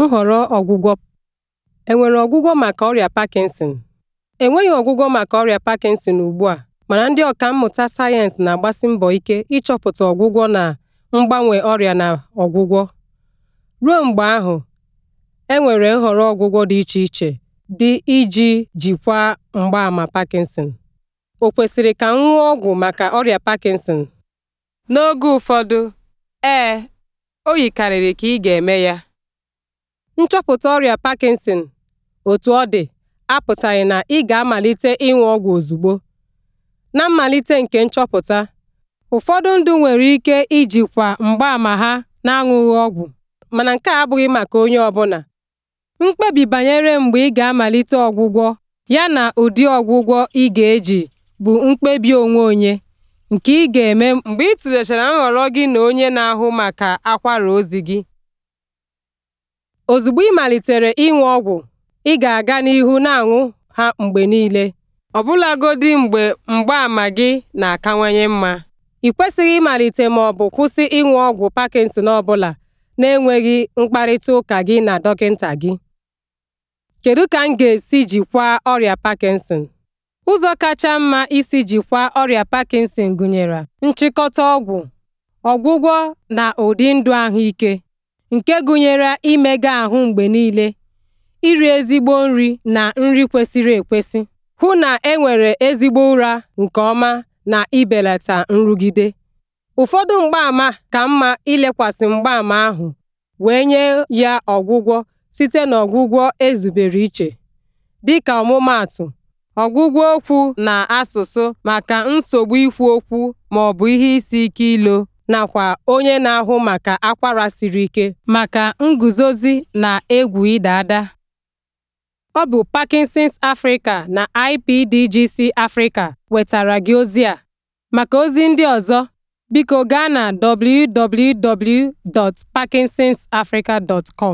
Nhọrọ Ọgwụgwọ Enwere ọgwụgwọ maka ọrịa Parkinson? Enweghị ọgwụgwọ maka ọrịa Parkinson ugbu a, mana ndị mmụta sayensị na-agbasi mbọ ike ịchọpụta ọgwụgwọ na mgbanwe ọrịa na ọgwụgwọ. Ruo mgbe ahụ, enwere nhọrọ ọgwụgwọ dị iche iche dị iji jikwaa mgbaama Parkinson. Ọ kwesịrị ka m ṅụọ ọgwụ maka ọrịa Parkinson? N'oge ụfọdụ, ee, o yikarịrị ka ị ga-eme ya. Nchọpụta ọrịa Parkinson, otu ọ dị, apụtaghị na ị ga-amalite ịṅụ ọgwụ ozugbo. Na mmalite nke nchọpụta, ụfọdụ ndụ nwere ike ijikwa mgbaàmà ha na-aṅụghị ọgwụ, mana nke a abụghị maka onye ọbụla. Mkpebi banyere mgbe ị ga-amalite ọgwụgwọ yana ụdị ọgwụgwọ ị ga-eji bụ mkpebi onwe onye nke ị ga-eme mgbe ị tụlechara nhọrọ gị na onye na-ahụ maka akwara ozi gị. Ozugbo ị malitere ịṅụ ọgwụ, ị ga-aga n'ihu na-aṅụ ha mgbe niile, ọbụlagodi mgbe mgbaàmà gị na-akawanye mma. Ị kwesịghị ịmalite ma ọ bụ kwụsị ịṅụ ọgwụ Parkinson ọbụla na-enweghị mkparịtaụka gị na dọkịta gị. Kedu ka m ga-esi jikwaa ọrịa Parkinson? Ụzọ kacha mma isi jikwaa ọrịa Parkinson gụnyere nchịkọta ọgwụ, ọgwụgwọ na ụdị ndụ ahụike. nke gụnyere imega ahụ mgbe niile, iri ezigbo nri na nri kwesịrị ekwesị, hụ na enwere ezigbo ụra nke ọma na ibelata nrụgide. Ụfọdụ mgbaama ka mma ilekwasị mgbaama ahụ wee nye ya ọgwụgwọ site n'ọgwụgwọ ezubere iche, dịka ọmụmaatụ, ọgwụgwọ okwu na asụsụ maka nsogbu ikwu okwu maọbụ ihe isi ike ilo. nakwa onye na-ahụ maka akwara siri ike maka nguzozi na egwu ịda ada. Ọ bụ Parkinson's Africa na IPDGC Africa wetara gị ozi a. Maka ozi ndị ọzọ, biko gaa na www.parkinsonsafrica.com.